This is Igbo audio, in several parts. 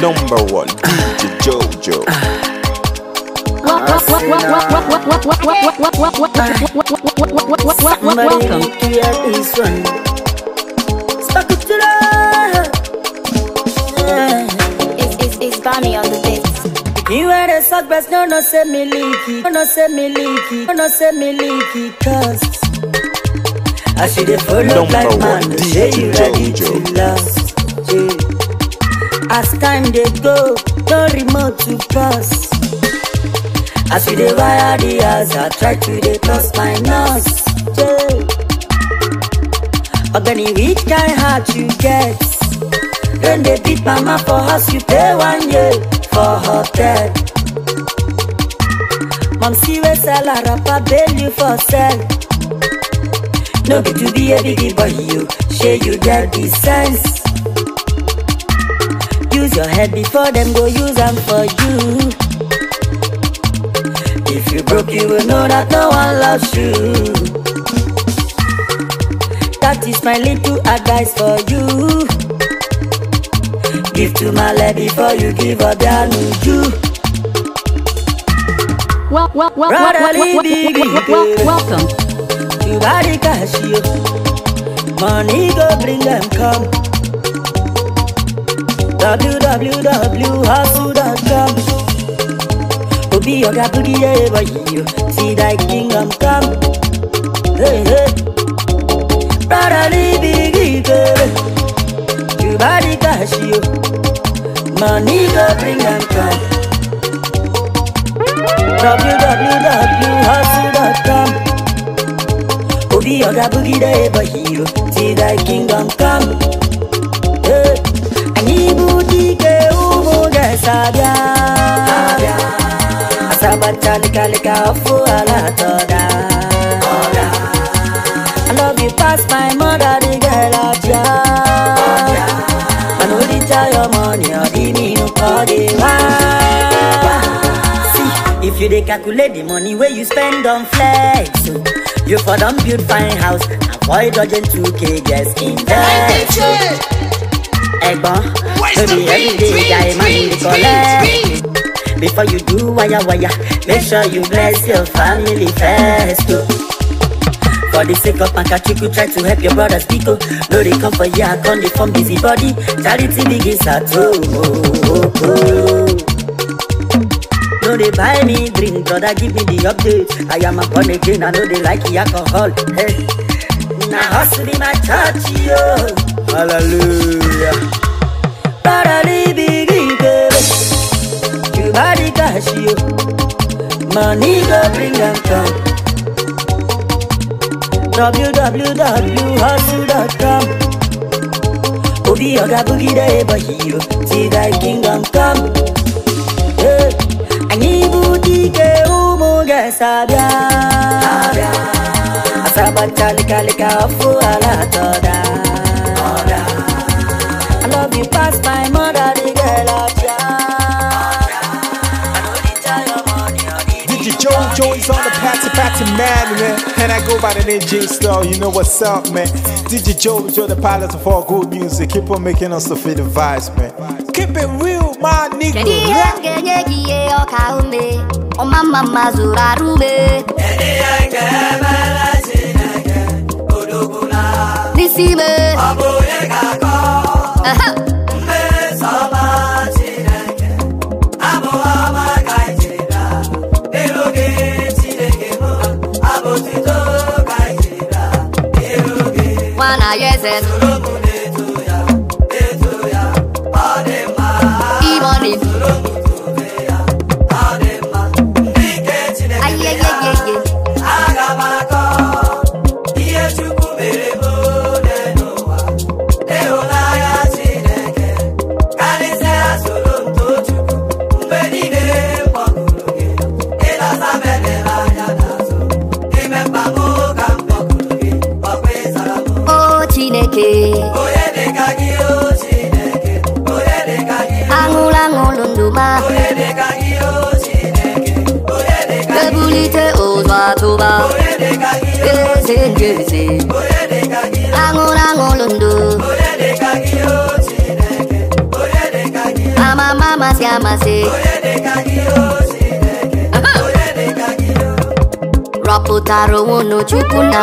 Number one, DJ Jojo. Welcome to your this one. It's, on the beat. You are the suck best, no, no, say me leaky, no, no, say me leaky, no, no, say me leaky, cause I should have followed like man, say you ready to last, as time dey go no remote to cross as we dey wire the house i try to dey cross my nose ogani which kind heart you get don dey beat mama for house you pay one year for hotel mom see wey sell her wrapper bail you for sell no be to be a big boy you shey you get the sense use your head before them go use them for you. If you broke, you will know that no one loves you. That is my little advice for you. Give to my Male before you give up Yanuju. to. well, well, well, well, well, well, welcome. You body cash you. Money go bring them come. www.hustle.com Obi boogie búrí ẹ̀rọ yìí See that kingdom come. Hey Rárá níbi kíkéré, Yorùbá ní káàṣì o, money go bring am come. www.hustle.com Obi boogie búrí ẹ̀rọ yìí See that kingdom come. Hey sabia asabata likalika ofu alatoda I love you past my mother, the girl at ya I know the tell your money, or me no call the See, if you dey calculate the money where you spend on flex oh, You for don build fine house, avoid dodging 2k, just invest ẹ̀gbọ́n everyday day I'm máa the collect. Before you do wayawaya, make sure you bless your family first. Oh. For the sake of you, try to help your brothers people No, they come for ya, come they form busy body. Charity begins at home. Oh, oh, no they buy me drink, brother give me the update. I am a born again, I know they like the alcohol. Hey. Now hustle be my church, yo. Hallelujah. You body cash you. mani go bring them come. www.hustle.com eh, Obi oga boogie day but you see that kingdom come. Hey, anyị bụ dike Sabia, Sabia, esabịa Asaba chalika lika ọfụ ala atọ daa Joey's on the patty patty man, man. And I go by the name J Star, you know what's up, man. DJ Joey, you're the pilot of all good music. Keep on making us the fit vibes, man. Keep it real, my nigga. mma na ya eze imoni ayeyeyeye eze aṅụrụ ndụ amama amasị amasị rọpụtara onwe unu chukwu na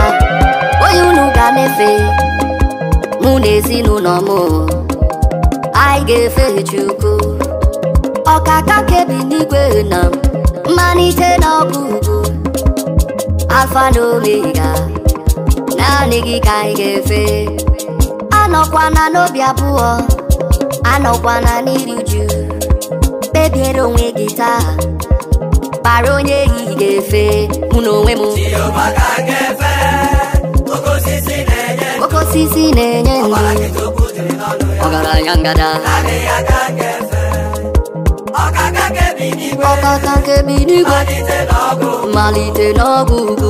onye unu ga-efe mụ na ezinụlọ m anyị ga-efe chukwu ọkaka kebi n'igwe na mmalite na ugwu. alfa na omega naanị gị ka anyị ga-efe anọkwana n'obi abụọ anọkwana n'iri uju kpebiere onwe gị taa kpara onye ehihie ga-efe mụ na onwe m Oko osisi na-enye ndụ ọgaranya ngada ọkaka nke bi n'igwe malite n'ọgwụ ugwu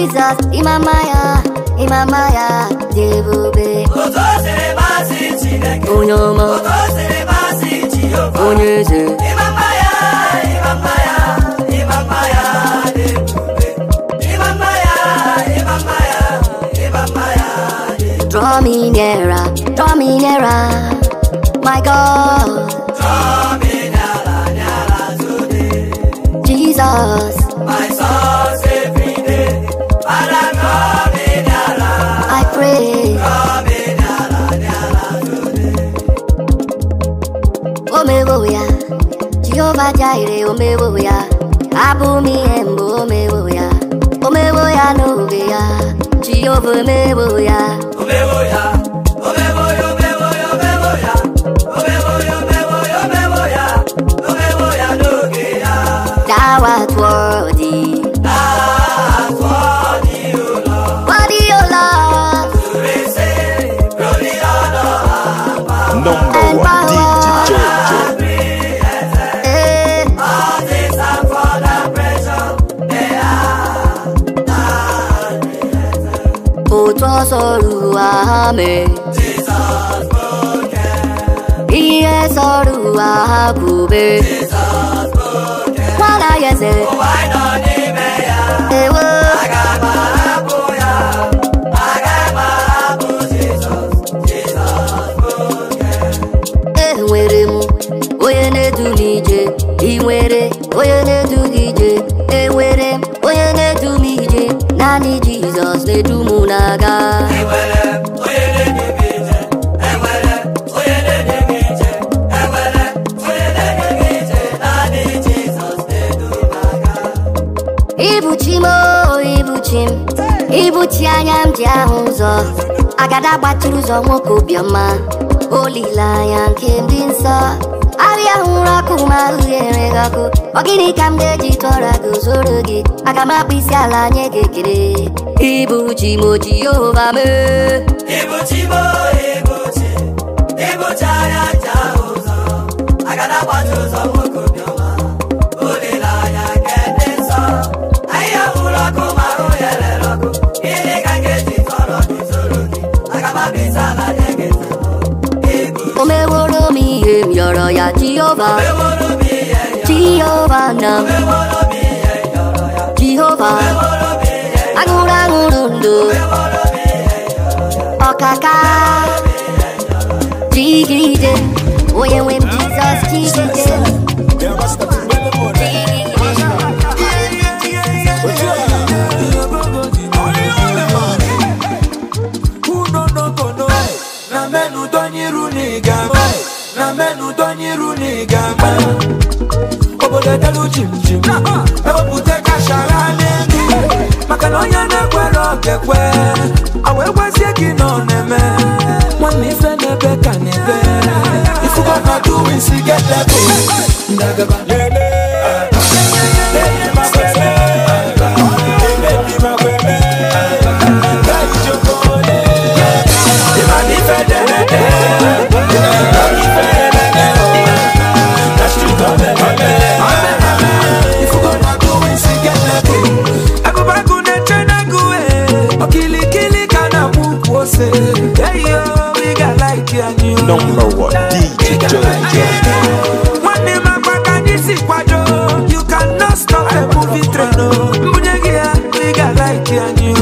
Jesus Imamaya Imamaya Jebube Otozere mazi Chineke Onye ọma Otozere mazi Jehova Onye eze Imamaya Imamaya Imamaya be. Imamaya Imamaya Imamaya Draw me nearer Draw me nearer My God Draw me nearer nearer to Thee, Jesus jaire omewoya abumi embo omewoya omewoya nobeya jehova omewoya omewoya omewoya omewoya omewoya omewoya omewoya omewoya omewoya nobeya thou art worthy sọ̀rọ̀ àmì. Iye sọ̀rọ̀ àkùbé. Wọ́n láyé ṣe. Wọ́n á nọ níbẹ̀ yá. Èwo. Àgàbà Jizọs na-edu mụ na-aga ibuchi m ibuchi m ibuchi anya m ji ahụ ụzọ agada gbatịrị ụzọ nwoke obiọma olileanya nke ndị nsọ arịa hụrụ ọkụ ma ahụ ghere gị ọkụ ọ gịnị ka m ga-eji tụọra gị zoro gị aga m akpụ isi ala nye gị ekele Ibuchi mochi ova me Ibuchi mo ibuchi Ibuchi ayata ozo Agada watu zo moko bioma Olila ya kende so Aya uloko maro yele loko Ile kangeti toro kizoroki Agaba bizala yegeti Omeworo mi em yoro ya Jehovah Omeworo mi em yoro Jehovah nam Omeworo mi em yoro ya Jehovah mundo. Okaka, digide, oye wem Jesus digide. na menu donyiru n'igama obodo delu jimjim ewepụta kashara n'elu maka na onye I awekwezie gị na ọ na-eme nwanne ife n'ebe ka na-ebe ifugo na duwinsi gedebe ndagaba lele number one DJ Jojo. One name I got this quadro. You cannot stop the movie train. Oh. Mujegia, nigga like you and you.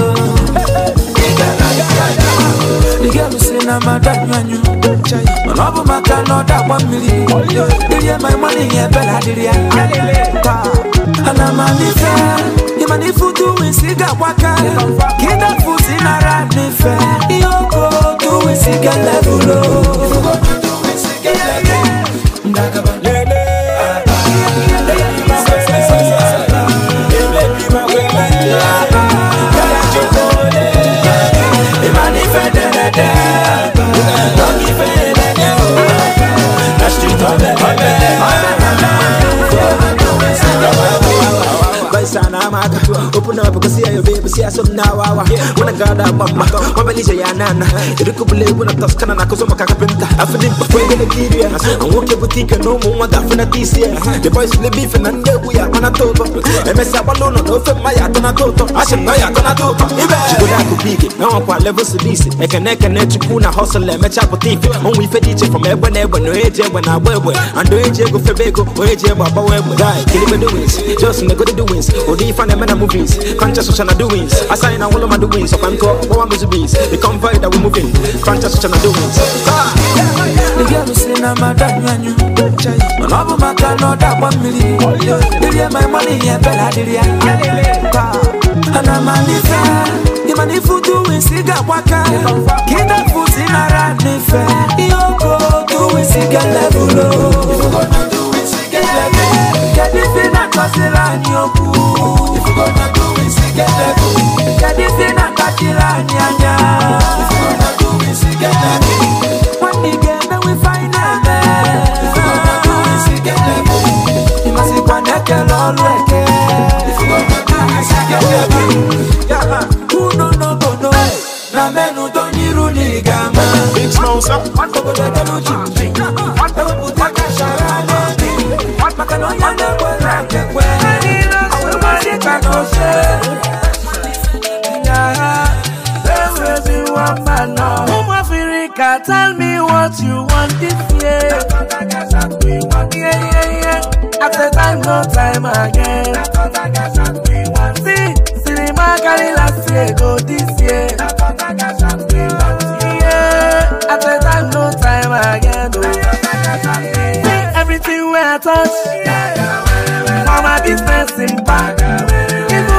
like you. The girl say na madam and you. Man, I'm maka no one million. Give you my money, yeah, but I did it. And I'm a different manifutu winsiga waka kida futi nara nife iyoko Open up because see I ya sunna wawa wana gada mama mabalisha ya nana irikubule wana taskana na kusoma kakapinta afidin pafwende na kiria anwoke butika no mu wada fina tisia the boys le beef na ndebu ya mana toto emesa balono no maya tana toto ashe maya tana toto ibe chikola kubige na wakwa level sidisi ekene kene chukuna hustle emecha potifi onwe ife diche from egbe na no eje egbe na agba egbe eje egbe febego o eje egbe agbawa egbe guy doings just nego the doings odi ifa movies conscious social doings I sign and all of my doings up and talk, more music beats. The convoy that we The girl who say na madam yanyu, man maka no da one million. money yeah bella did ya? And I'm manifest. Imani futu wisiga waka Kida futi nara nife Iyoko tu wisiga levulo Ifugona tu wisiga levulo Kedifina kwa sila nyoku Ifugona tu wisiga Isigeteku Jadi sina kakila nyanya Isigeteku Isigeteku Wani gebe we find a man Isigeteku Isigeteku Imasi kwa neke lolweke Isigeteku Isigeteku Yama Uno no bono Na menu tonyiru ni gama Big Smosa Wako godo delu chimchi Wako kutaka sharana Makano yande kwa ranke kwe mama no say. Yeah, baby, be one man no. Home Africa, tell me what you want this year. want Yeah, yeah, yeah. After time, no time again. See, cinema carry last year, go this year. Yeah, after time, no time again. Oh. See, everything we touch. Yeah. business in back.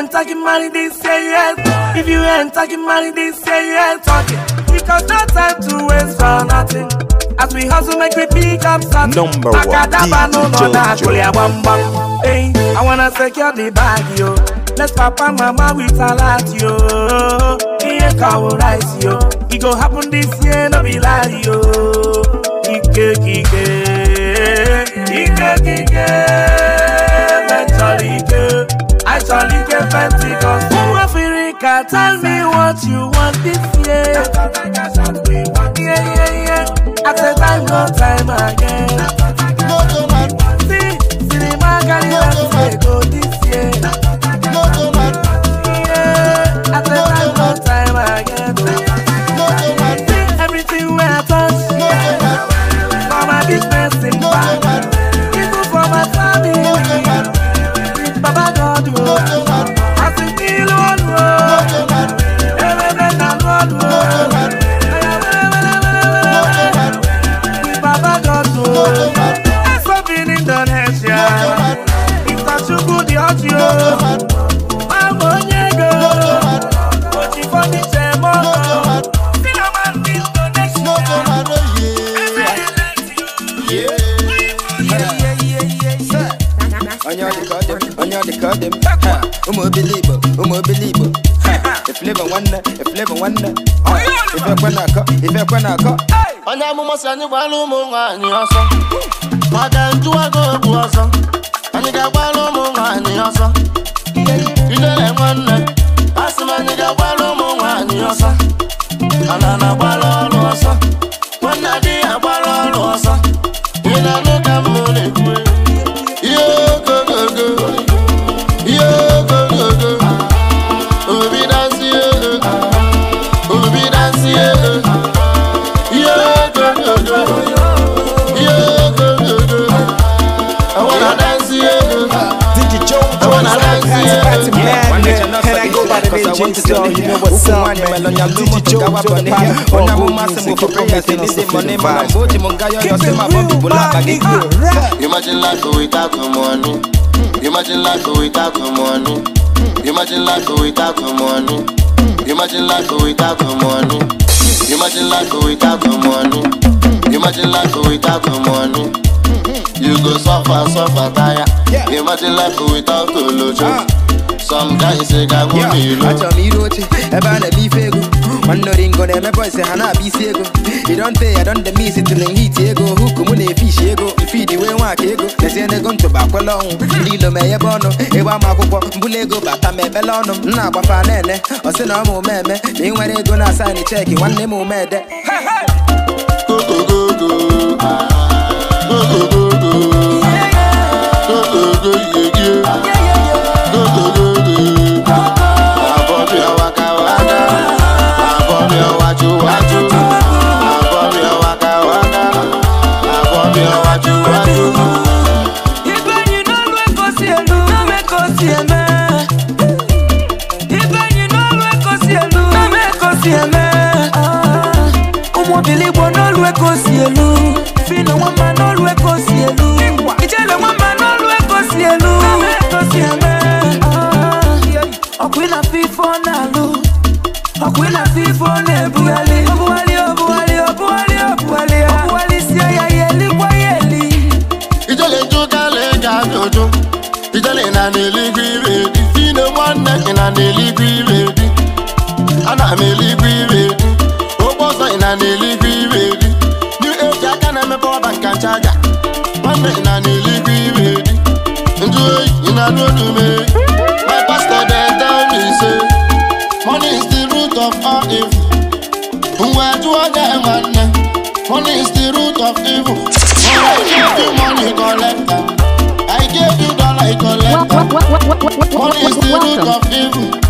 ain't talking money, they say yes. If you ain't talking money, they say yes. Talking. Because no time to waste for nothing. As we hustle, make we pick up something. Number one, Akadaba, no, no, no, Hey, I wanna secure the bag, yo. Let's papa, mama, we salat, yo. Here, cow rice, yo. It go happen this year, no be lie, yo. Ike, ike, ike, ike. actually get Pentecost. Who Africa, tell me what you want this year. Yeah, yeah, yeah. At the time, no time again. See, see the cinema carry us go this year. I'm a believer, I'm a believer. If live one, if live one, if you can knock, if you can knock. Ọ̀nà àmúmọ̀ sí àní gbà ló mú wa ní ọ̀sán. Màdà ń tú àgọ́ ògùn ọ̀sán. Àníkà gbà ló mú wa ní ọ̀sán. Ilé one wọ́n nà. Àsìmọ̀ àníkà gbà ló mú wa ní ọ̀sán. Ànànà gbà lọ́ọ̀lù ọ̀sán. Wọ́n nà dí àgbà lọ́ọ̀lù ọ̀sán. Imagine life without money. Hmm. Imagine life without money. Hmm. Imagine life without money. Hmm. Imagine life without money. Imagine life without money. Imagine life without the money. You go suffer, suffer, tire. Imagine life without the Some guys say I won't eh, be low Watch me roche, eba na beef ego Wando ringo na me eh, Boys say hana beef ego oh. You don't say I don't eh, the miss it till heat ego Huku mune fish ego, feed iwe nwa ka ego Nesi ene gonto bakwala ọnwụ Ndị ilo me ebe ọnụ, ịgba m akwụkwọ Mbulu ego bata m ebele ọnụ M na-agbafa na-ene, ọ sị na ọ mụ meme Na ị nwere ego na sign check, nwanne m umede Go go go. Go go go. yeah yeah, koko koko ekosi elu fina nwamba n'olu lu elu ijele nwamba n'olu ekosi elu ekosi eme ọkụ ịna fifo na fi e ọkụ oh, ịna fifo na-ebugharị obugharị oh, obugharị oh, obugharị obugharị obugharị sie ya ya elikwa ya eli ijele njụgala eji ajụjụ ijele na n'eluigwe ire dị fina nwanne gị na n'eluigwe power bank and charger na na-eligwe iwe dị njụ oyi my pastor dem tell me say money is the root of all evil mgbe jụọ gị nwanne money is the root of evil I gave you money collector I gave you dollar collector money is the root of evil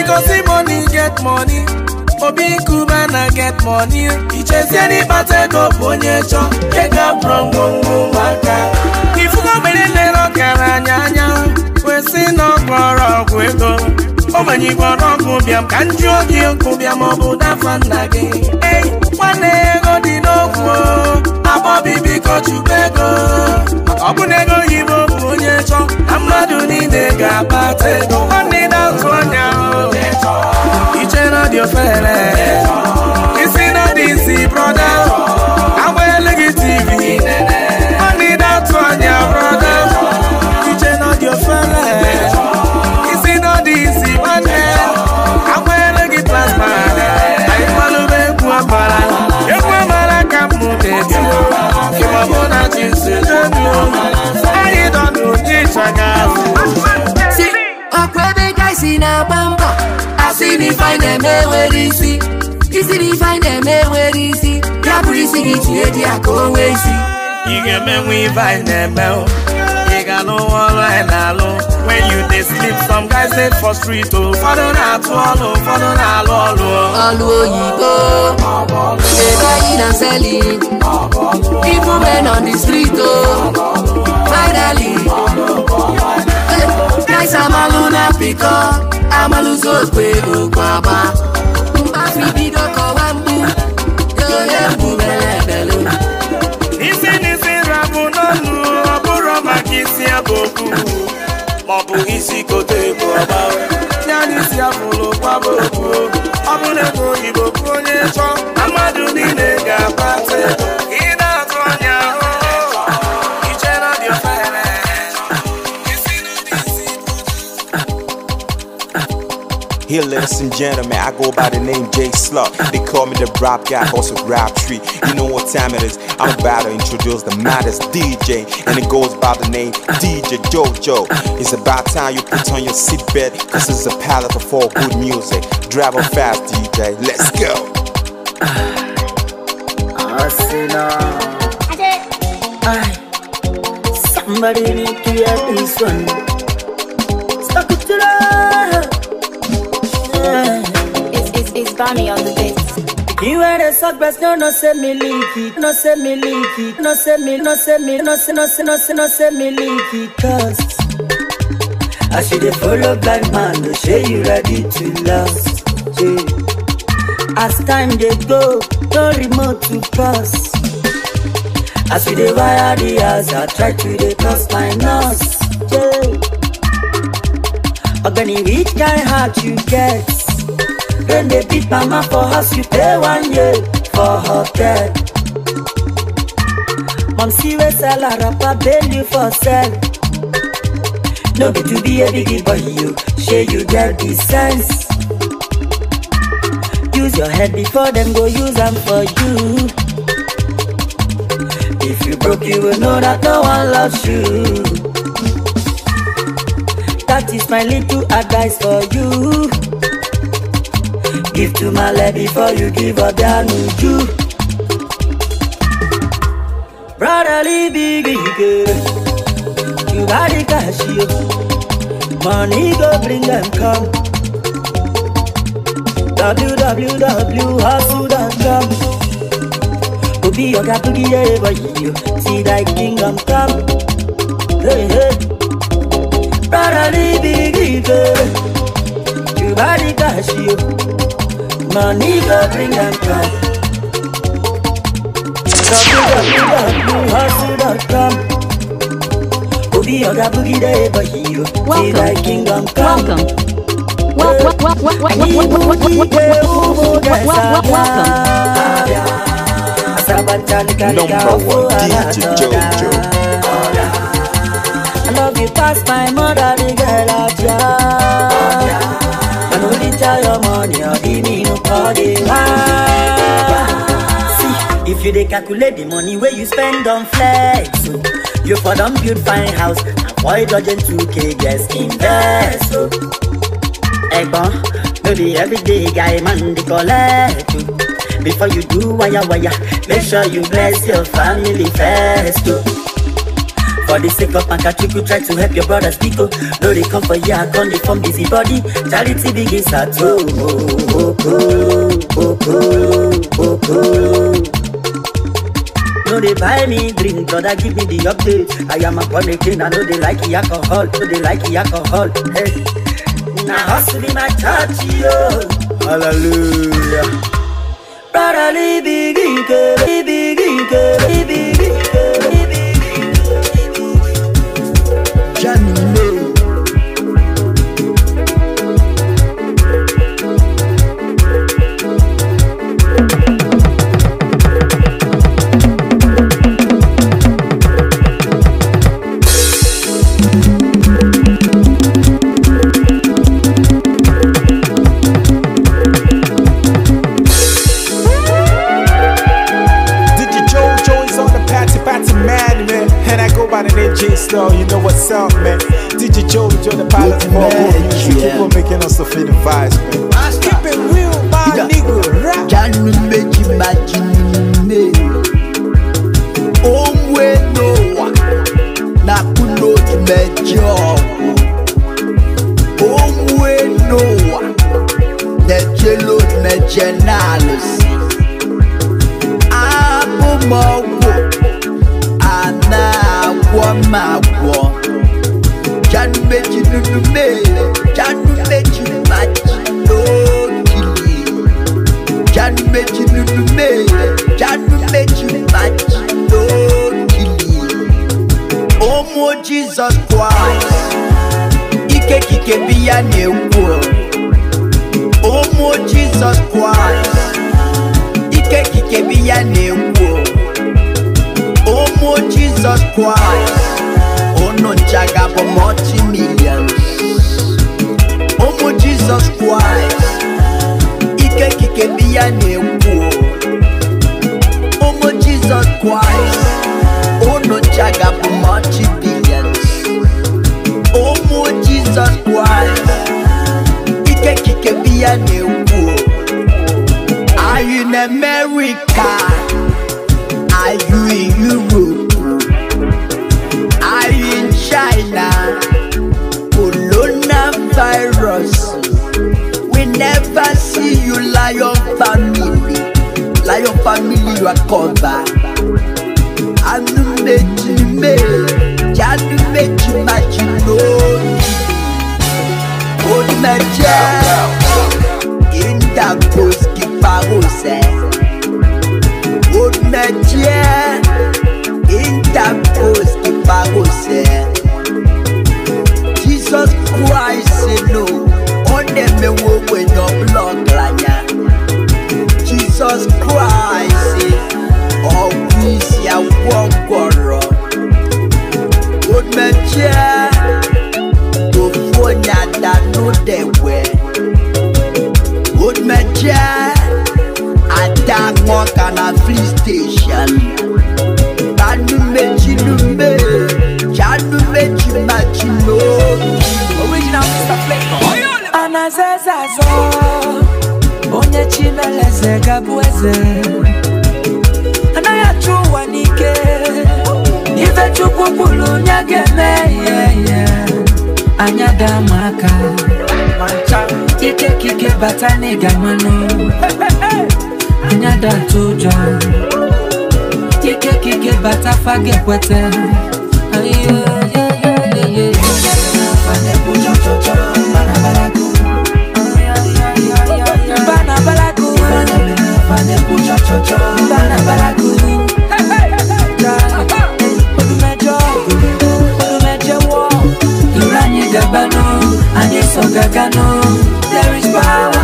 because the money get money obi nkuba na get money ichezie n'ịkpata ego bụ onye chọ ego abụrụ ngwongwo ụmụaka ifugo mgbere nlere ọkara anya anya kwesị na ọgwọrọ ọgwụ ego ogbenye igwe ọrụ ọgwụ bịam ka m jụọ gị nkụ bịam ọ bụ dafa nna gị nwanne n'okwu akpọbibikochukwu ego ọ I na ego oyibo bụ onye chọ na mmadụ niile ga-akpata ego nwanne na-azụ anya iche na dị ofere isi na dị I brọda agbanyeghị tv nwanne na-atụ anya brọda ọkwa ebe ga isi na-agba asị na na-eme isi isi na eme enwere isi ya bụrụ isi gị isi ị ga-emenwe ife anyị na-eme ị ga n'ụwa ọrụ anyị na-alụ dey sleep some guys dey for street o oh. ụfọdụ na-atụ ọlụ ụfọdụ na-alụ ọlụ ọlụ oh. oyibo dey buying and selling even men on the street o oh. finally eh, guys amalu na pịkọ amalụzi okpe okwe agba mkpafi bido kọwa mgbu onye mgbu mere ebelu isi n'isi rabụ n'ọnụ ọ bụrụ maka isi abụ okwu isi kote bụ i Here, ladies and gentlemen, I go by the name Jay Slug. They call me the rap guy, also rap tree. You know what time it is. I'm about to introduce the maddest DJ, and it goes by the name DJ JoJo. It's about time you put on your seatbelt, cause it's a palette of all good music. Drive on fast, DJ, let's go. Arsenal. Somebody need to hear this one. Stuck it to the. It's, it's, it's Bonnie on the beat. You are the suck best, no, no, say me leaky, no, say me leaky, no, say me, no, say me, no, say, no, say, no, say, no, say me leaky, cause. as you dey follow blind man no say you ready to last yeah. as time dey go no remote to pass as we dey wire the house i try to dey cross my nose yeah. ogbeni which kind heart you get rain dey beat mama for house you pay one year for her hotel mom see wey sell her wrapper bail you for sell. No be to be a biggie boy, you share you get the sense. Use your head before them go use them for you. If you broke, you will know that no one loves you. That is my little advice for you. Give to my lad before you give up your new Brotherly biggie girl. you got the cash, you. Money go bring them come. www.hustle.com Go be your guy to be give everybody you. See thy kingdom come. Hey, hey. Brotherly big evil. You got the cash, you. Money go bring them come. www.hustle.com Obi Oga Boogie the ever hero. Welcome. Like kingdom come. Welcome. Welcome. Welcome. Welcome. Number one DJ Jojo. I love you past my mother, the girl out here. I know they tell your money, or give me no call See, if you dey calculate the money where you spend on flex. So. You for don build fine house, avoid dodging 2k, yes, invest. Oh. Egbon, no be everyday guy man dey collect. Oh. Before you do waya waya, make sure you bless your family first. Oh. For the sake of Pankachuku, try to help your brothers Pico. No, they come for ya, come from busy body. Charity begins at home. Oh, oh, oh, oh, No, they buy me drink, brother, give me the update. I am a again, I know they like the alcohol, know they like the alcohol. Hey, now hustle in my church, yo. Hallelujah. Brother, leave leave me baby, baby, leave me. sasa onye chimeleze gabueze eze anaghị achụ ụwa n'ike ife chukwu kwuru onye ga-eme ihe anya ike kike bata n'ịga mmanụ yeah, yeah, yeah, yeah, yeah. tempo chochocho Barabara good Gabano, and it's on There is power,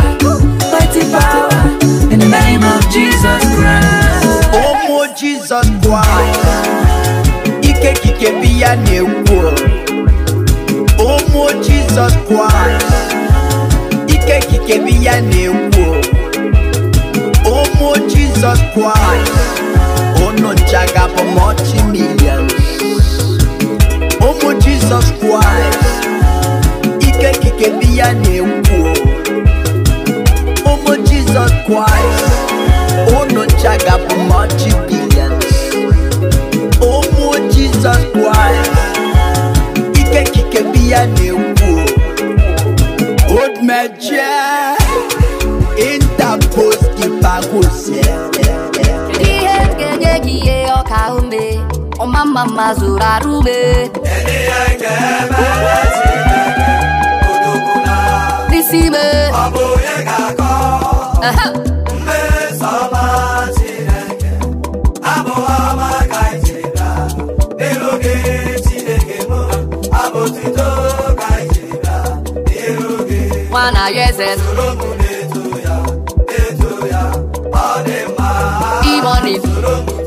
mighty power, in the name of Jesus Christ. Oh, Jesus Christ. Ike kike biya newo. Oh, Jesus Christ. Ike kike biya Jesus Christ oh no! Jaga for multi millions Oh my Jesus Christ ike kike dị ya na-ekwu ụmụ Jesus Christ oh no! Jaga for multi billions Oh my Jesus Christ ike kike dị ya na-ekwu old mejie interpose kipagosie mama mazura rube Nisime Ọbụghị ga-akọ Mmeso ọma Chineke Abụghị ọma ka icheta N'iru gị Chineke mụ Abụtito ka icheta N'iru gị Nwana Yeze Soro mụ na-eto ya Eto ya Ọ dị mma Imoni Soro mụ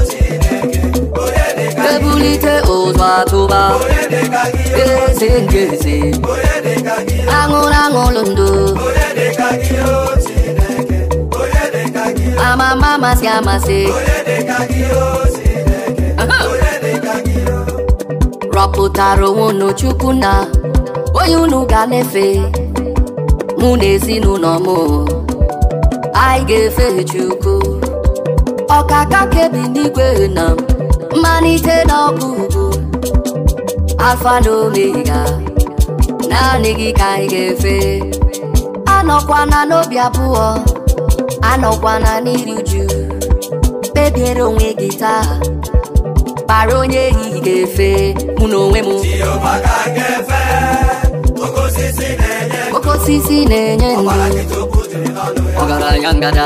ebulite ụzọ atụba eze nke eze aṅụrụ aṅụrụ ndụ amama amasị amasị rọpụtara onwe unu chukwu na onye unu ga-efe na mụ na ezinụlọ m anyị ga-efe chukwu ọkaka kebi n'igwe na m mmalite n'ọkụ ọgwụgwụ alfa na omega naanị gị ka anyị ga-efe anọkwana n'obi abụọ anọkwana n'iri uju kpebiere onwe gị taa kpara onye ehihie ga-efe mụ na onwe m oke osisi na-enye ndụ ọgaranya ngada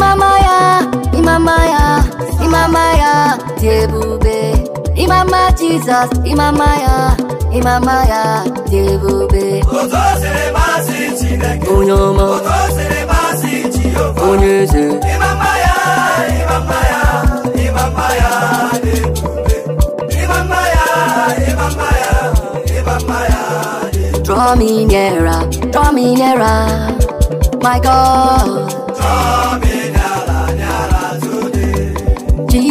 Imamaya, Imamaya, Imamaya, Tebube, Imama Jesus, Imamaya, Imamaya, Tebube. Onyama, Onyeze, Imamaya, Imamaya, Imamaya, Tebube, Imamaya, Imamaya, Imamaya. Draw me nearer, draw me nearer, my God. Draw me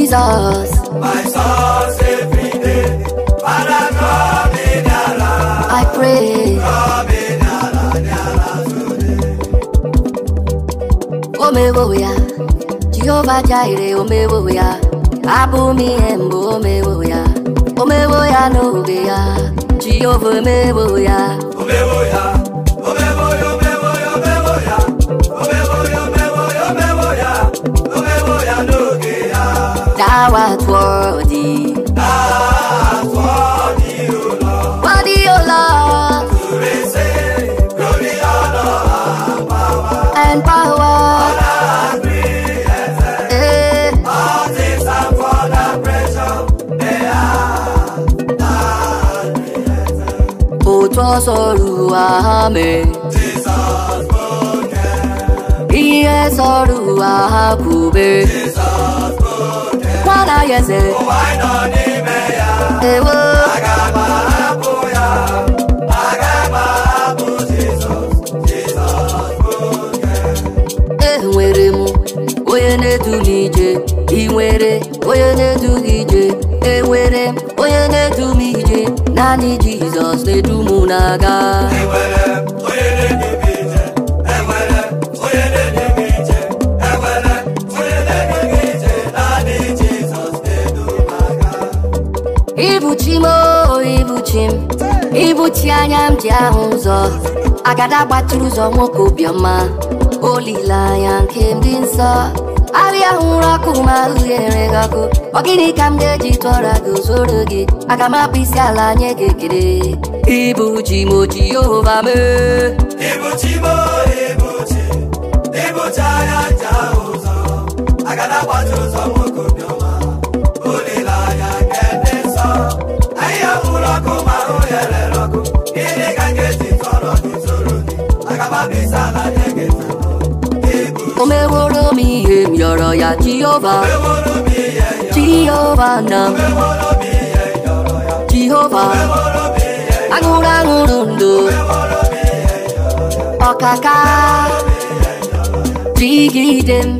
Jesus. My source every day, Father, come in I pray. Come in today. Omewoya, Jehovah Jireh, oh oh me, Omewoya, Abumi Embo, me, me, oh oh oh Omewoya no Obeya, Jehovah me, me, oh oh oh Omewoya. outworldly. Outworldly, O Lord. Worthy, O Lord. To receive and power. And power. Honor and greatness. Eh. All things are for the pressure. They are and created. Òtọ́ sọ̀rọ̀ àhámẹ́. Jesus spoken. Iye sọ̀rọ̀ àhákùbẹ́. Jesus. hata yeze ụwa nọ n'ime ya ewo aga agbahapụ ya aga agbahapụ Jizọs Jizọs oge enwere m onye na-edu n'ije ị nwere onye na-edu gị ije enwere m onye na-edu m ije naanị Jizọs na-edu m na-aga enwere onye na-edu ibuchi anya m ji ahụ ụzọ agada gbatụrụ ụzọ nwoke obiọma olileanya nke ndị nsọ arịa hụrụ ọkụ ma ahụ ghere gị ọkụ ọ gịnị ka m ga-eji tụọra gị zoro gị aga m akpụ isi ala nye gị ibu ji m oji yehova mee ibuchi m ibuchi ibuchi anya nje ahụ ụzọ agada gbatụrụ ụzọ nwoke obiọma olileanya nke ndị nsọ arịa hụrụ ọkụ ma ahụ ghere omeworo mi ihe m yọrọ ya jehova jehova na jehova aṅụrụ aṅụrụ ndụ ọkaka jigide m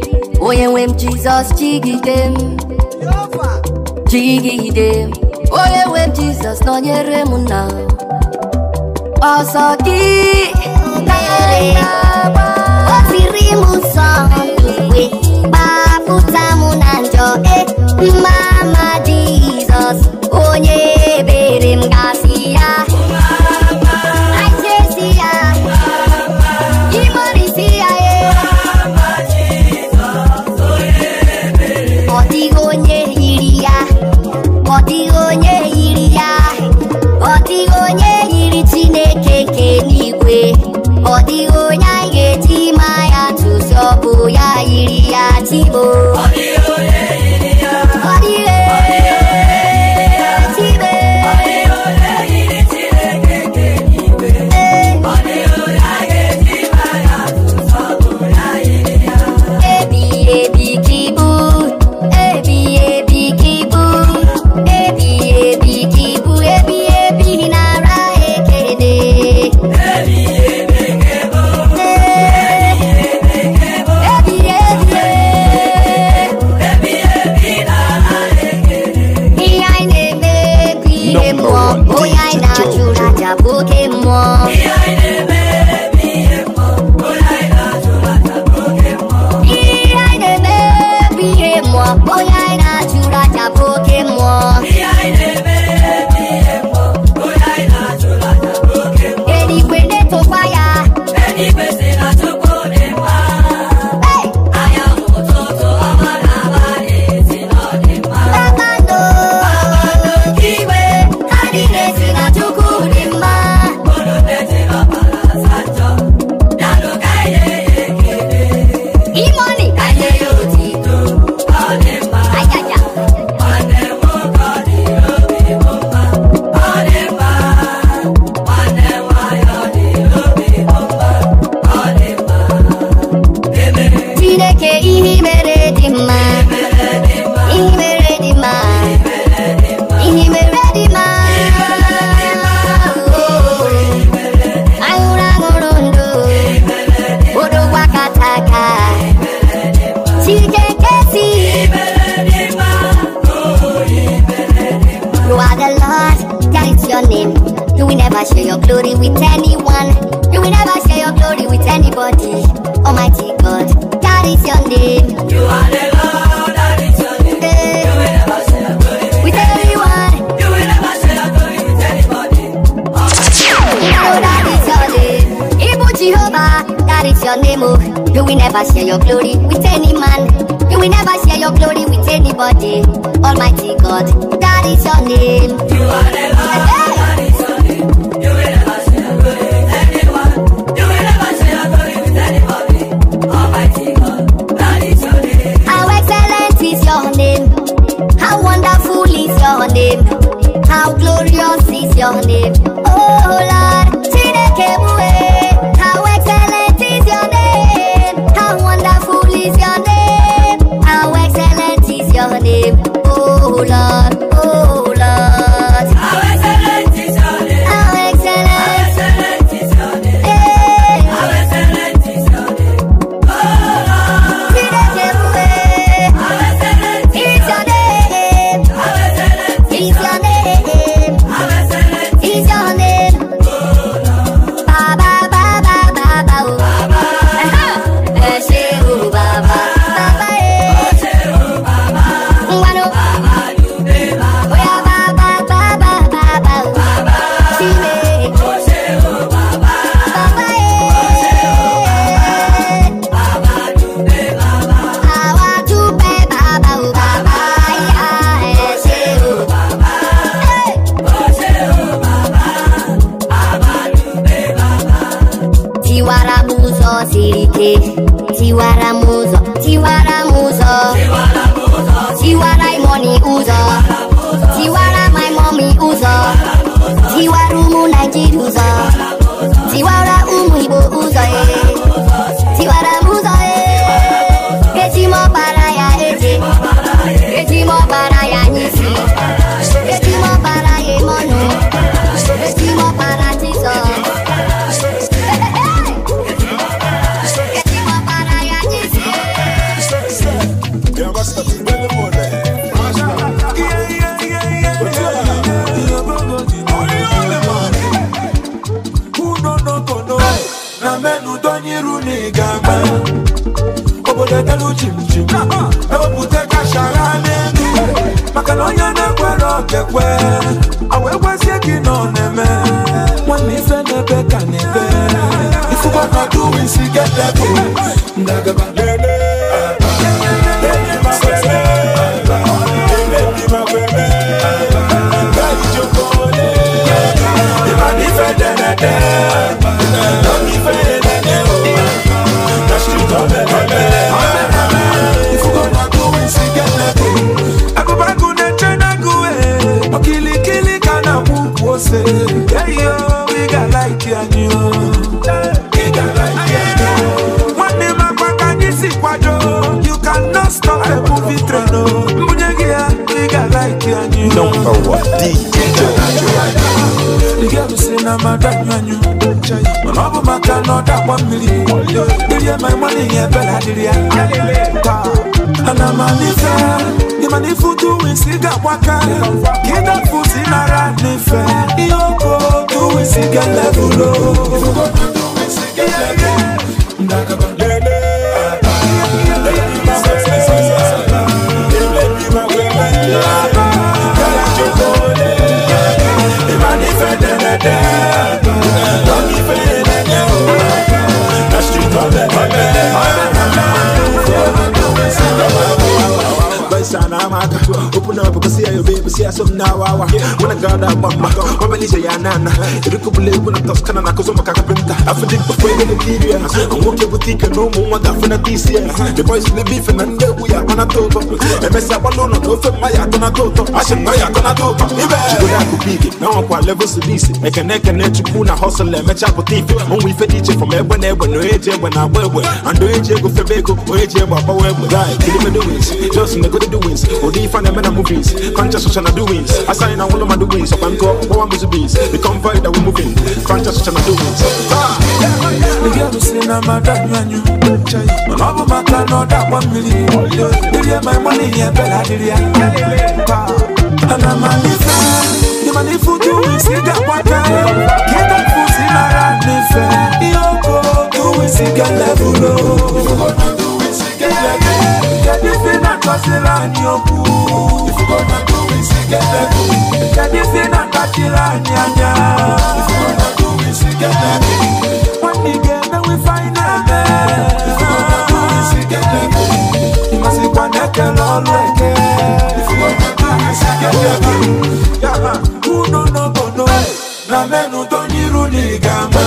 onye nwe m jizọs jigide m jigide m onye nwe m jizọs nọnyere m na ọsọ gị mama oh yeah, baby. ekwe awekwezie gị na ọ na-eme nwanne ife n'ebe ka na na madanyụ anyụ mana ọ bụ maka na ọ dakwa mmiri my money ebela dịrị ya ana m alife ịmana ife utu isi ga-agbaka ka ịdafu si nara n'ife ihe oko otu isi ga-elebulo Yeah. Street, my bad, my bad. I'm not going to Vice and I'm out. Open up, because see your baby, see some now. When I got that mama, when I say Yanana, you could believe when I toss Canada, because I'm a carpenter. I feel it before the interior. I'm working with Tika, no more, I'm going to this year. The boys will be Fernando, we are going to talk. MS Apollo, no, no, my Yakona Toto. I should buy Yakona Toto. Now I'm quite level to this. I can neck and neck. you pull a hustle Let me chop with it. When we fed each from everyone, everyone, no age, when I wear, wear. and the age go for Beko, or age, but I wear, guy, kill him in the ways. Just in the with the doings. Odi fan and movies. Conscious social doings. I sign all of my doings. Up and go, bees. The comfort that moving. Conscious girl a mother, my money? Yeah, Bella, level low. katila ni oku If you gonna do it, see get heavy Kedisi na katila ni anya If you gonna do it, see get heavy When we get there, we find it there If you gonna do it, see get heavy Imasi kwa neke lolweke If you gonna do it, see get heavy Yama, uno no bono Na menu tonyiru ni gama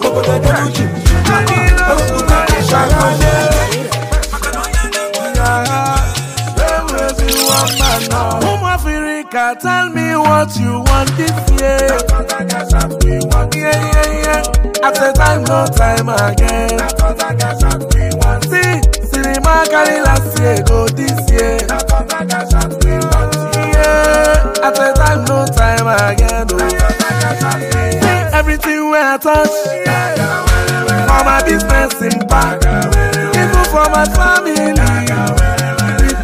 Obodo denuji Obodo denuji Obodo denuji Home Africa, tell me what you want this year. Yeah, yeah, yeah. After time, no time again. See, see cinema carry last year, go this year. Yeah, after time, no time again. Oh. See, everything where I touch. For my business impact. Even for my family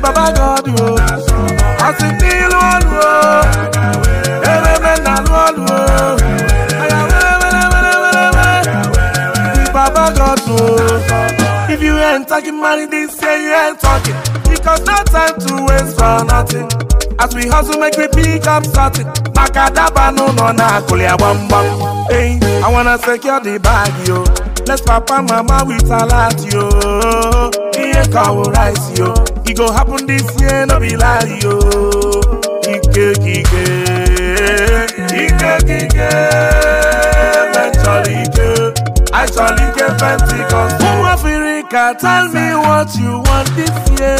baba god o asi ndị ilu ọlụ o ememe na alụ ọlụ o aya werewerewereme ndị baba god o oh. if you ain't talking money this year you ain't talking because no time to waste for nothing as we hustle make we pick up something Makadaba no no na akụlị agbamgbam hey i wanna secure the bag yo. Bless papa mama with a lot yo Iye kawo rice yo It go happen this year no be lie yo Ike Ike, Ike kike Mentally ike Actually ike fancy cause Who Africa tell me what you want this year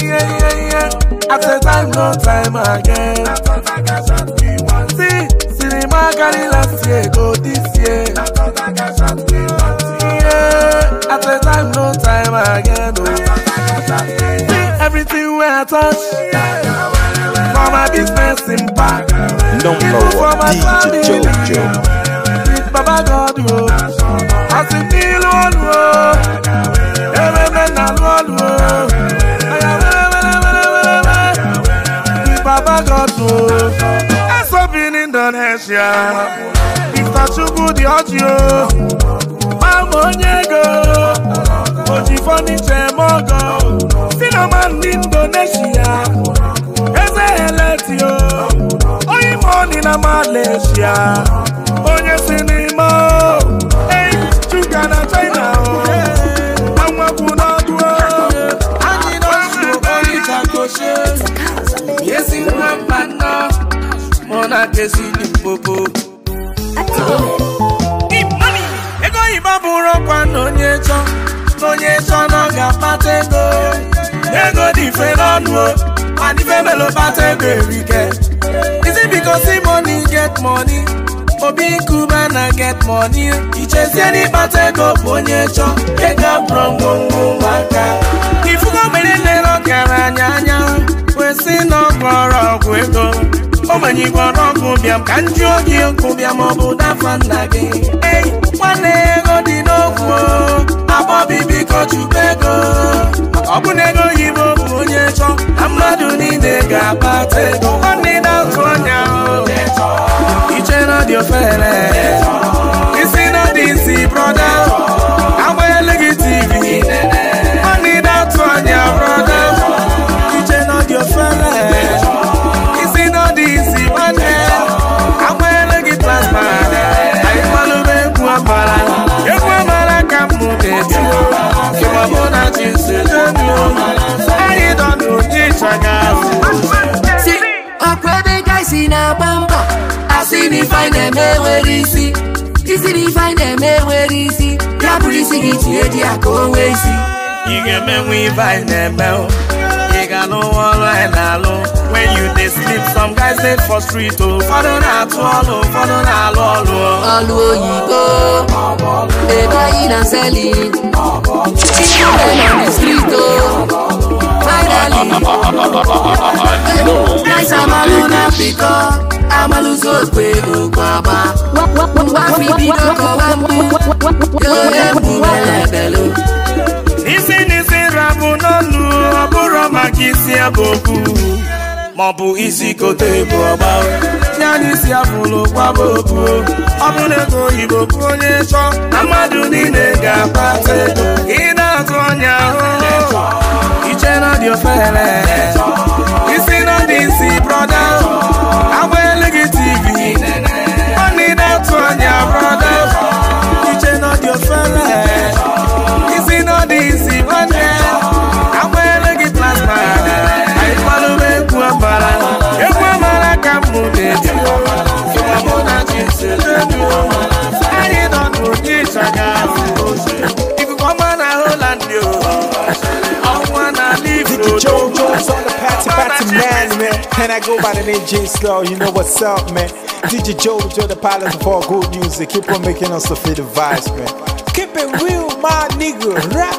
Yeah yeah yeah After time no time again See cinema carry last year go this year wey I touch. For my business impact. Number one, DJ Jojo. With Baba God, yo. Oh. I see me alone, yo. Oh. Every man alone, yo. Oh. Baba God, yo. That's up in Indonesia. you, Mr. Chukwu, the audio. Mama Onyego. Ojifoniche Mogo. German Indonesia eze eleti o onye ma na Malaysia onye si n'ime o eyi shuga na China o oh. anwapụ n'ọdụ o oh. anyị na-osu oyi ka koshe yesi nwa mba nna mụ na kesi n'ikpoko ego oyibo bụrụ ọkwa na onye chọ na chọ na ọ ga-akpata ego ego dị mfe n'ọnụ o and ife melo bata ego erike is it because see money get money obi nkuba na get money e. ichezie n'ịkpata ego bụ onye chọ ego abụrụ ngwongwo ụmụaka ifugo mere nlere ọkara anya anya kwesị na ọgwọrọ ọgwụ ego o manyikwa n'ọkụ bịa m ka ndị oge nkụ bịa ma gị ei nwanne ego dị n'okwu abọbi biko chukwu ego ọ ego oyibo bụ onye chọ na mmadụ niile ga-akpata ego nwanne na-atụ anya iche dị ofere isi na dị isi brọda agbanyela gị tivi nwanne na-atụ anya brọda mụ na chi si n'obi anyị nọ n'ụdị ịchanya si ọkwa ebe gaisi na-agba mbọ asị na ife anyị na-eme enwere isi isi na ife anyị na-eme enwere isi ya bụrụ isi gị tinye di ya ka o nwee isi ị ga-emenwe ife anyị na when you dey some guys dey for street o ụfọdụ na-atụ ọlụ ụfọdụ na-alụ ọlụ ọlụ oyibo ebe I'm a loser, pay no baba. Wá fi bí dọ́kọ̀ wá mú, yóò yẹ mú ẹlẹ́bẹ̀ ló. Nísìnyí sí rabun náà lu, ọ̀bùrọ̀ màkì sí ẹ̀bùn kù maọbụ isi kote bụ ọgba yana isi abụlụ kwaba obu ọ bụrụ na oyibo bụ onye chọọ na mmadụ niile ga-akpata ego ị na-atụ ọnya ahụ iche na dị ofele isi na dị isi brọda agbaele gị tivi ọ na ị na-atụ ọnya brọda iche na dị ofele isi na dị isi brọda And I go by the name J Slow, you know what's up, man. DJ Jojo, the pilot of all good music. Keep on making us the feel the vibes, man. Keep it real, my nigga. Rap.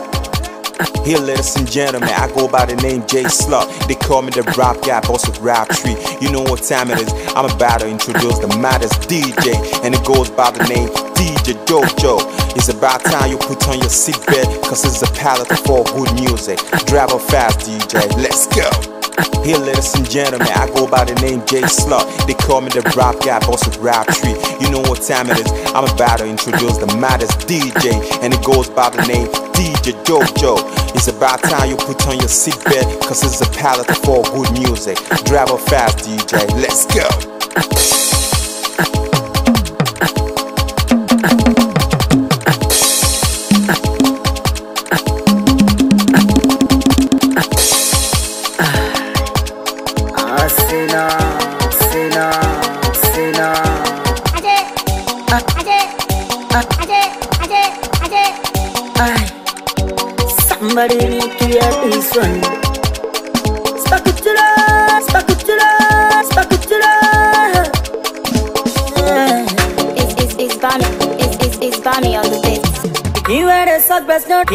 Here, ladies and gentlemen, I go by the name Jay Slug. They call me the rap guy, boss of rap tree. You know what time it is. I'm about to introduce the maddest DJ, and it goes by the name DJ Jojo. It's about time you put on your seatbelt, cause it's a palette for good music. Drive up fast, DJ. Let's go. Here, ladies and gentlemen, I go by the name Jay Slug. They call me the rap guy, boss of rap tree. You know what time it is. I'm about to introduce the maddest DJ, and it goes by the name DJ Jojo. It's about time you put on your seatbelt, cause it's a palette for good music. Drive up fast, DJ. Let's go.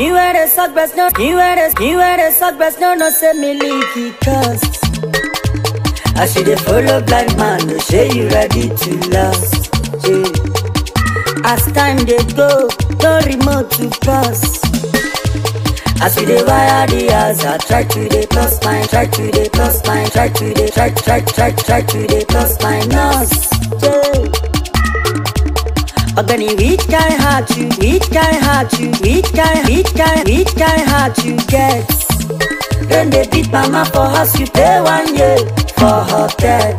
You had a suck best no You had a you had a suck best no no send me leaky cause I see the follow blind man no say you ready to last yeah. As time they go, no remote to pass As we the wire the house, I try to the plus mine, try to the plus mine, try to the try try try try to the plus mine nose. Yeah. But then he weak guy hard to, weak guy hard to, weak guy, weak guy, weak guy hard to get. Then they beat mama for house, you pay one year for hotel.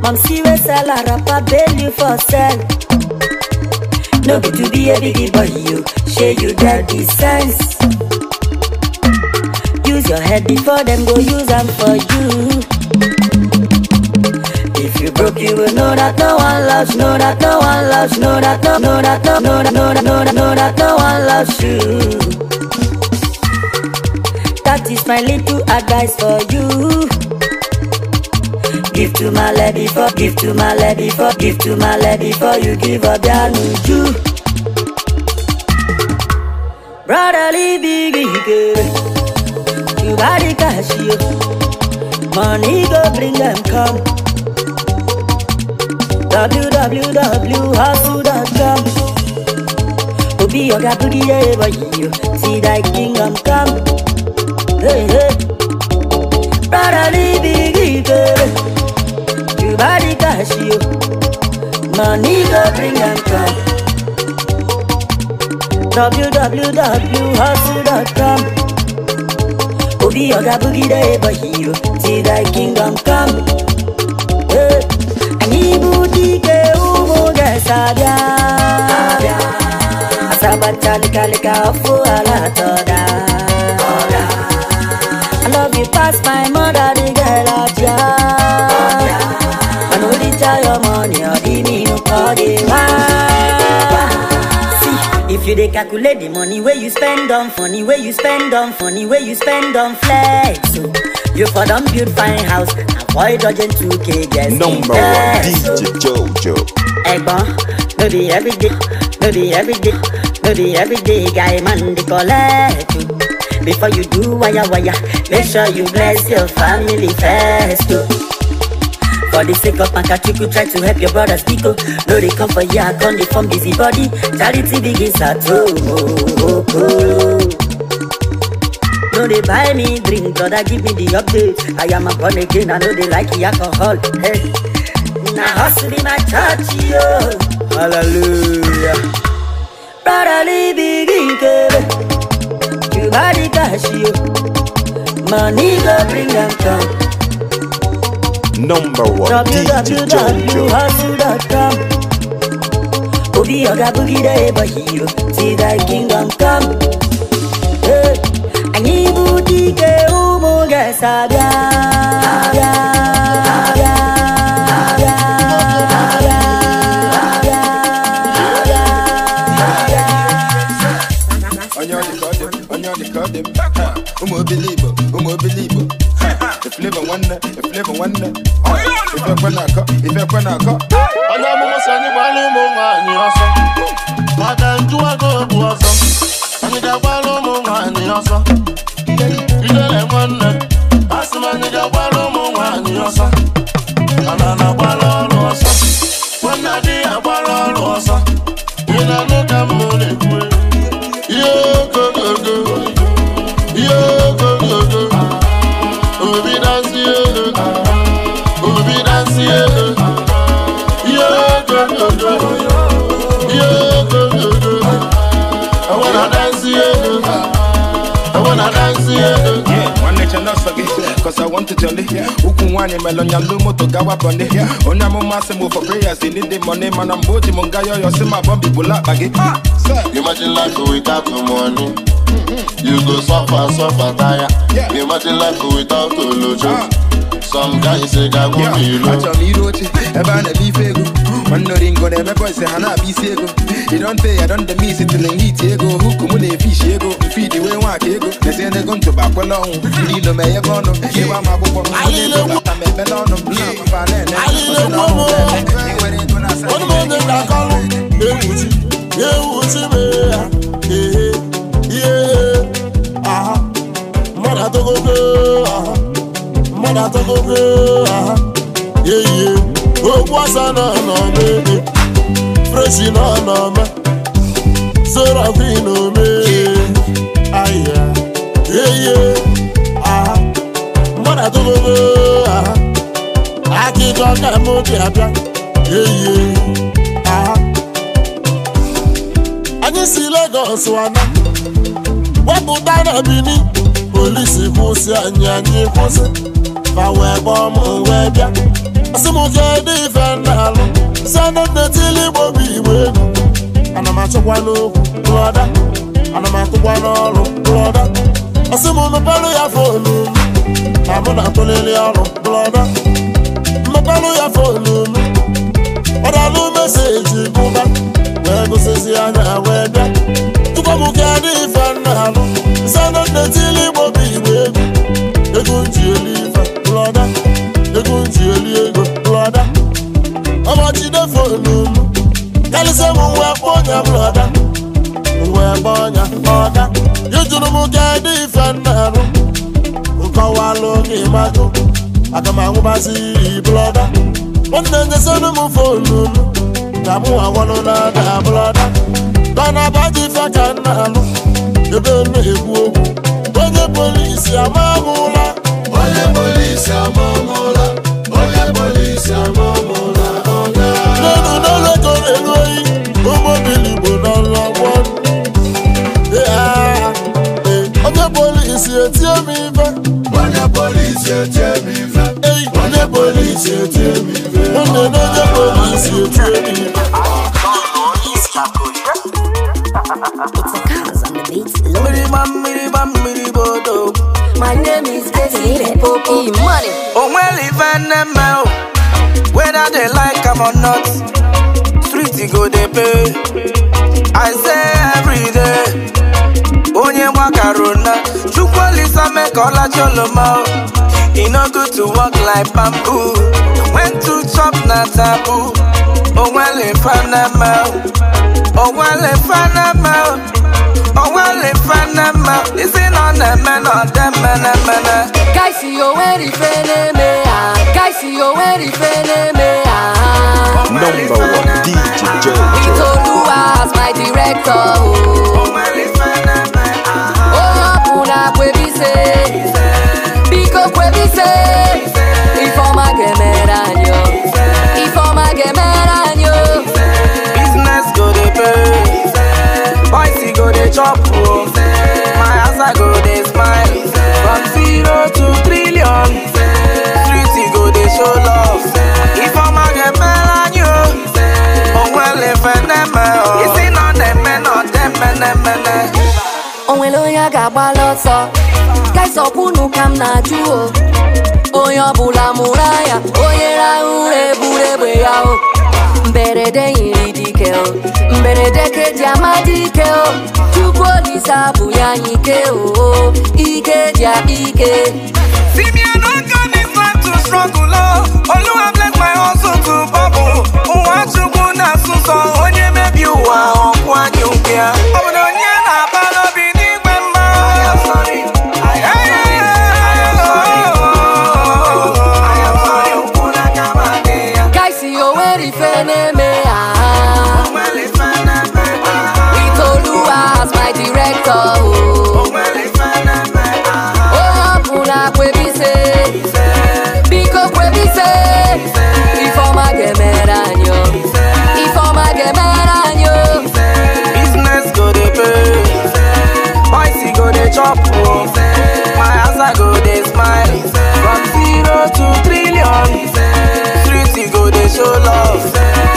Mom see we sell a rapper, bail you for sell. No be to be a biggie boy, you share you daddy sense. Use your head before them go use them for you. You broke you would know that no one loves, know that no one loves, know that no, know that no, know that no, know that know that no one loves you. That is my little advice for you. Give to my lady for, give to my lady for, give to my lady for you give up your luju. Brotherly biggie girl, you body cash oh. you. Money go bring them come. w w w h u s c o m o b o g i e y o u See that king m come Hey hey Brother l i v e You body cash you Money go bring and come www.hustle.com Obi oga boogie y a h o See that king m come toda Asabatalika lika ofu ala toda I love you past my mother the girl of ya Manu di your money or di me no call if you dey calculate the money where you spend on funny where you spend on funny where you spend on flex so oh. you for don build fine house avoid dodging 2k guests number one DJ oh. Jojo Hey bon, do the every day, do the every day, do the every day guy man they collect you. Before you do wire wire, make sure you bless your family first too. For the sake of you. try to help your brothers Biko. No, they come for you, I come, they form busybody. Charity begins at home. Oh, oh, oh. No, they buy me drink, brother, give me the update. I am a born again, I know they like the alcohol. Hey. na hustle de my church, yo. Hallelujah. Brotherly big girl, you body cash, yo. Money Number one, DJ Jojo. Obi oga boogie day, da you see that kingdom come. Hey, I need booty, ke oh, Abia. them. Umo believe, umo believe. If live wonder, if live wonder. If you going to go, if you going to I Ọ̀nà mo mọ̀ sani wà ló mọ̀ son, but ọ̀sán. Bàtà ń dúwà to o bu ọ̀sán. Àyìnká wà ló mọ̀ wà ní ọ̀sán. Ilé lẹ̀ mọ̀ nà. cause I want to jolly. Uku wani melonya lumo to gawa bonde. Onya mo masi mo for prayers, they need the money, man. I'm boji munga yo yo sima bombi bula bagi. Ah, Imagine life without the money. Mm-hmm. You go suffer, suffer, tire. Imagine life without the lojo. Ah. Some guys say, I won't be low. Acha mi roche, eba ne bi fegu. Mandoringo dem boy say hana be sego. You don't pay, I don't the miss it till they eat ego. Hook mune fish ego. Feed the way wa kego. They say they gon to back along. Lilo me ye gono. Ye wa ma bobo. Ale lo mo. Me belono. Na ma pa ne ne. Ale lo mo mo. Onu mo ne la kalu. Ye wuti. Ye wuti me ya. Ye ye. Aha. Mada to go go. Aha. Mada to go go. Aha. Yeah yeah. ogbuasa na anọma ebe freshi na anọma serafin omee ahịa eye aha mmadụ atụgogo aha akịjọ ka m dị abịa eye aha anyị si Lagos wana wepụta na Benin polisi kwụsị anyị anyị kwụsị fa wee bọọ m wee asọmpi dị ife ndalụ sanadetili igbo bụ igbo egwu ana m achọkwala okwu lụọda ana m atụkwala ọrụ lụọda asị m nụpalụ ya fonu na mụ na-atụlili ọrụ lụọda nnụpalụ ya fonu m ọ dalụ meseji bụba wee gụsịzi anya wee bịa tụkwa m dị ife ndalụ Ele se mu nwa kponya bloda Nwa kponya oda Yujuru mu ga di ife nnaru Nkọwalu gị mago Aga m anwụbazi bloda Nwanne nyesenu m fonu Ka mụ awọlu na ada bloda Gana abadi ife ka Ebe na-ekwu okwu Onye polisi ama mụla Onye polisi ama mi fẹ́. wọ́n ní polisi ò tiẹ̀ mi fẹ́. wọ́n ní polisi ò tiẹ̀ mi fẹ́. wọ́n ní lọ́jọ́ polisi ò tiẹ̀ mi fẹ́. My name is Desi Popo Money. Oh, well, even them out. Whether they like am or not, street go they pay. I say every day onye gbakaruna chukwu olisa mee ka ọlacha oloma e no good to work like bamboo when to chop na taboo onwele fanama onwele fanama onwele fanama isi na ọ na-eme na ọdemenemene kaisi onwere ife na-eme ha kaisi onwere ife na-eme ha Number one DJ Joe. It's Oluwa as my director. Oh bise biko kwe bise ifeọma ga-emere anyị ifeọma ga-emere anyị business go dey pay boys e go dey chop o my asa go dey smile from zero to nwere onye a ga-agbalị ọsọ kaịsọkwu unu ka m na-ajụ o onye ọbụla mụrụ anya onye rahụ ụra eburu egbe ya o mberede nyiri dike o mberede keji amadike o chukwu olise abụ ya anyị ike o ike dị ya ike struggle Oluwa bless my hustle to bubble Nwa chukwu na asụsọ onye mebi ụwa ọkwa nyụkịa Ọ bụ na onye na-abala biko kwere ife ifeọma ga-emere anyị ifeọma ga-emere anyị business go dey pay boys go dey chop o my answer go dey smile from zero to trillion street go dey show love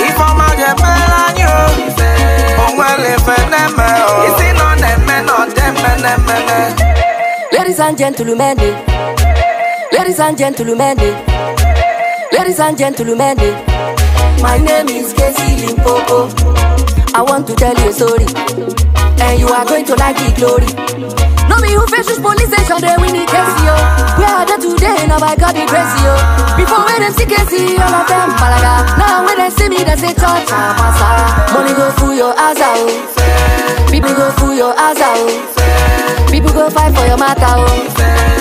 ifeọma ga-emere anyị o onwere ife na-eme o isi nọ na-eme nọ na-eme na-eme ladies and gentlemen Ladies and gentlemen, eh. ladies and gentlemen, eh. my name is Casey Limpopo. I want to tell you a story, and you are going to like the glory. No me who faces police station, they win the case, yo We are there today? Now I got the crazy, yo Before when them see case, all of them malaga Now when they see me, they say church, I'm ah, Money go through your ass out oh. People go through your ass out oh. People go fight for your matter, oh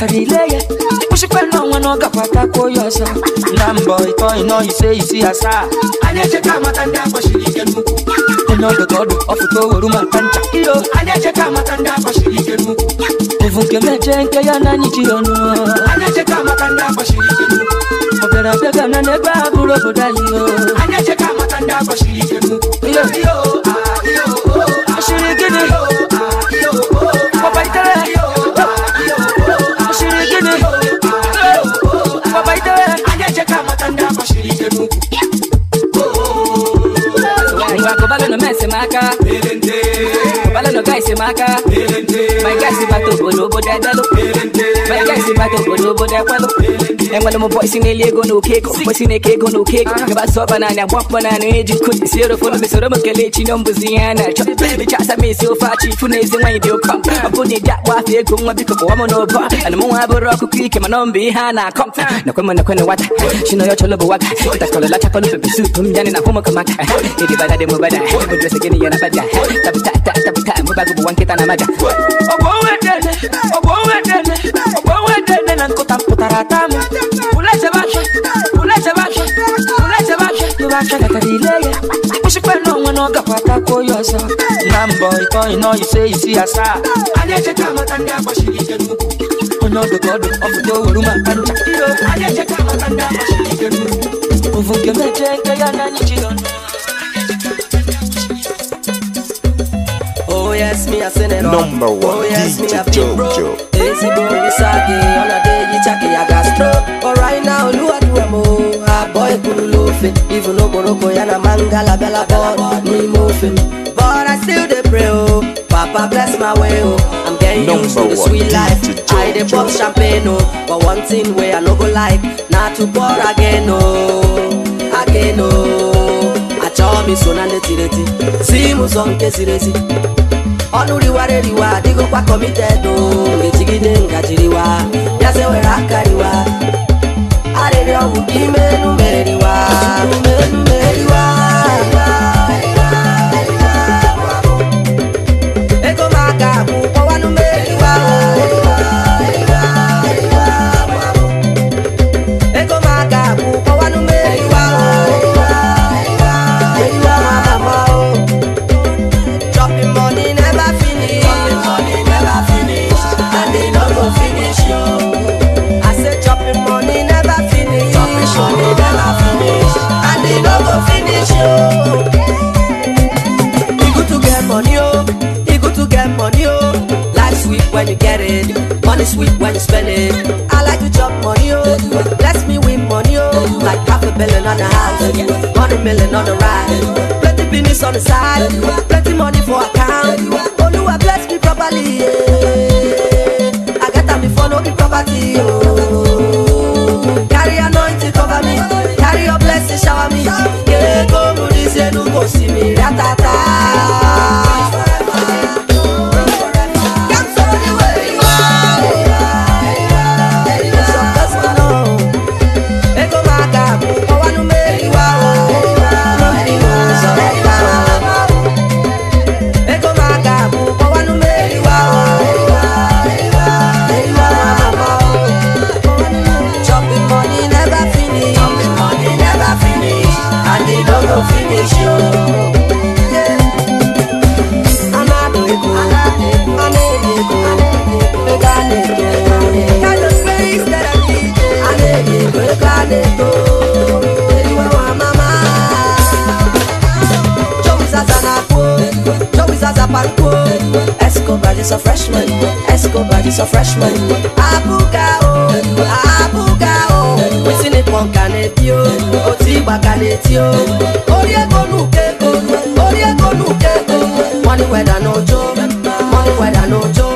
Katareleye ushikwe no mwana wakapata koyosa ndambo ito ino ise isi asa anyecheka matanda kwashirike nuku enodogodo ofutowoluma kancha iyo anyecheka matanda kwashirike nuku evunke meje nke ya nanyi chiyono anyecheka matanda kwashirike nuku ogarabegana negbe abụrụ obodo anyị o anyecheka matanda kwashirike nuku iyo iyo ah iyo oh, ah shiri gịnị acá. guys in Maka. My guys in Bato, Bodobo, Dadalo. My guys in Bato, Bodobo, Dadalo. And one of my boys in a Lego no cake, boys in a cake no cake. About ah. so banana, walk banana, age, eh, could zero for the Soroma Kalechi, Numbuziana. Chop, baby, chats I made so far, chief, who knows the way they'll come. Ah. I'm putting that wife here, come up because I'm on over. And I'm on a rock, quick, and I'm behind. I come. Ah. No, come on, no, come on, what? She know your cholo, what? That's all a lot of people who pursue, come down in a home of Kamaka. It is bad, I'm bad. I'm dressing in a bad. Tap, tap, tap, tap, tap bagụ nke ta na amaja ogbowedeogbowedeogbowedeede na nkụta pụtara ata m ụlejebeahịa ụlejebeahịa ụlejebeahịa tụrụ aka gatara ile ya kpụchikwa n'onwe na ọ gakwa atakwa onye ọzọ na mbọ ịtọị nọ ise isi no, anyị echeta amata ndị agbachiri ike n'ukwu onye ọdụ ka ọdụ ọpụta oweru maka ncha anyị echeta amata ndị agbachiri ike n'ukwu ụvụ nke mechie nke ya na anyị ji ọnụ Oh, yes, me a send it on. Number one, oh, yes, DJ Jojo. Easy boy, sagi, on a day, you chucky, I got stroke. But right now, you are doing more. A boy, cool, loafing. Even though Morocco, and a mangala, bella, ball, me moving. But I still the pray, oh. Papa, bless my way, oh. I'm getting Number used to the sweet life. I the pop champagne, oh. But one thing where I no go like, not to pour again, oh. Again, oh. Mi so na ndị tiri si m ụzọ nke si. ezi ọnụ riwa, eriwa adịghịkwa kọmited ejigide ngajiriwa bịaze were aka riwa arịrịọ bụ ka ime enu meriwa umenu meriwa get it. Money sweet when you spend it. I like to chop money, oh. Bless me with money, oh. Like half a billion on the house, hundred million on the ride. Plenty business on the side, plenty money for account. Only Oluwa bless me properly, yeah. I get them before no be property, oh. Carry anointing cover me, carry your blessing shower me. Escobar is a freshman. Escobar is a freshman. Abuga o, abuga o. Wetin ni pọn kaneti o, o ti gba kaneti o. Orí ẹ̀kọ́ nù kéko, Money ẹ̀kọ́ nù kéko. Money wẹ̀dà n'ojo, money n'ojo.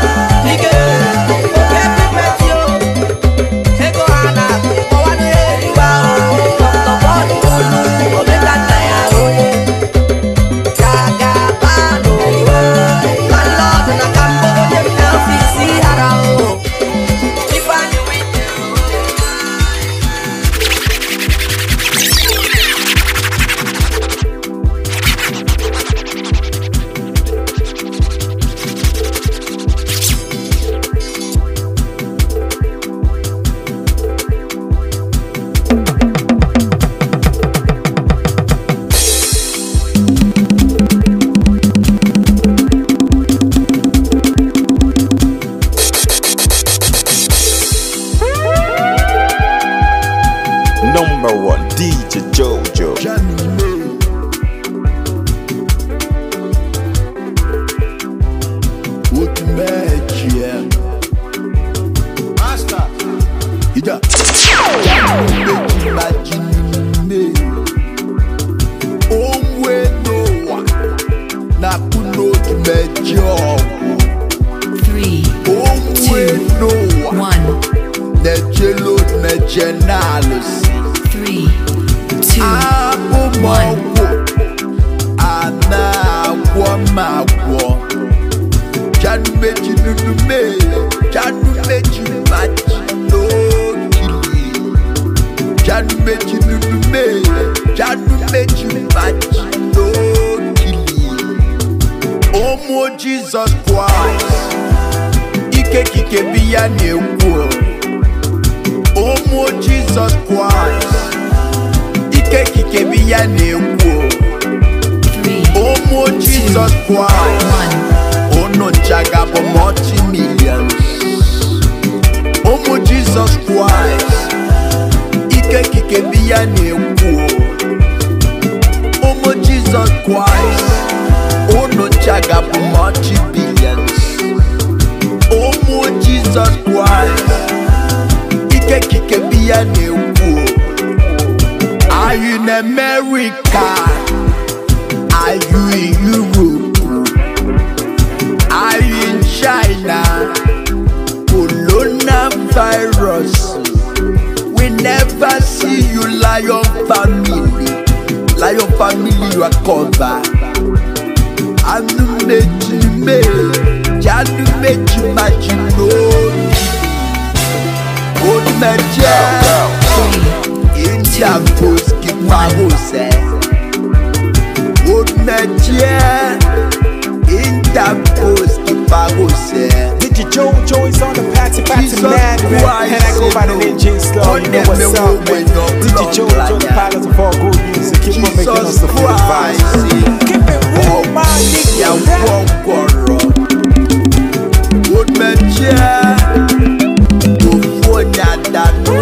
jealousy. Three, two, one. Anagwamagwo. Janu meji nunu mele. Janu meji no Janu Janu no Omo Jesus Christ. Ike kike biya ne wo. ụmụ Jizọs Kraịst ike kikebi ya na-ekwu ụmụ Jizọs Kraịst unu nchagabụ mọchi milion ụmụ Jizọs Kraịst ike kikebi ya na-ekwu ụmụ Jizọs Kraịst unu nchagabụ mọchi bilion ụmụ Jizọs Kraịst kekike biya na-ekwu Are you in America? Are you in Europe? Are you in China? Corona virus. We never see you lion family Lion family you are covered Anumechi me Janumechi machinobi Good nature In Chagos Keep my house Good nature In Chagos Keep my house Digi Joe Joy's on the patsy patsy mad rap And I go by the ninja slow You know what's up man Digi Joe Joe the pilot of all good music Keep on making us the full vibes Keep it real my nigga Good nature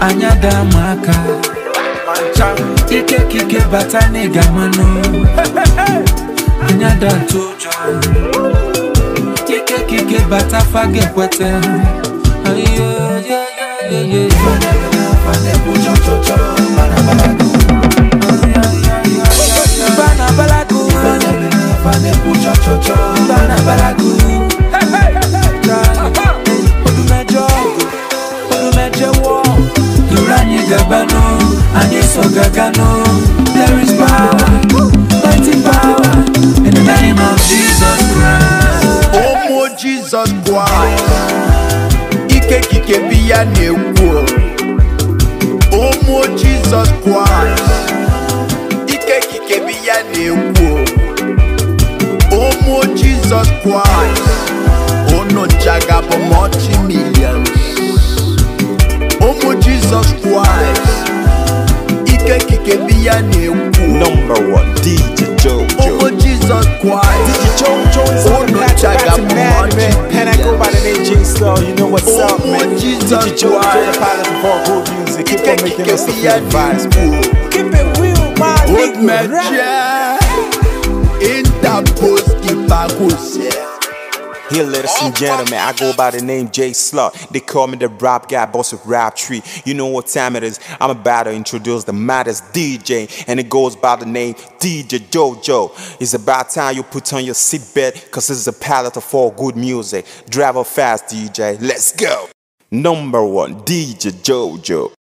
anyada maka ikekike bata n'ịga mmanụ anyada tụjọ ikekike bata fage kweta Banabalagu Banabalagu Banabalagu Banabalagu gabano and it's so gagano. There is power, mighty power in the name of Jesus Christ. Oh, Jesus Christ. Ike kike biya newo. Oh, more Jesus Christ. Ike kike biya newo. Oh, more Jesus Christ. Oh, no jagabomochi. Jesus Christ Ike Number one DJ Jojo Oh Jesus Christ DJ Jojo is on the mad man I go by the name J Slow You know what's oh, up man Jesus DJ Jojo the pilot of all good music Keep on making us the vibes Keep it real my nigga man Interpose kipa kò here, ladies and gentlemen. I go by the name Jay Slot. They call me the rap guy, boss of rap tree. You know what time it is. I'm about to introduce the maddest DJ, and it goes by the name DJ JoJo. It's about time you put on your seatbelt, cause this is a palette of all good music. Drive up fast, DJ. Let's go. Number one, DJ JoJo.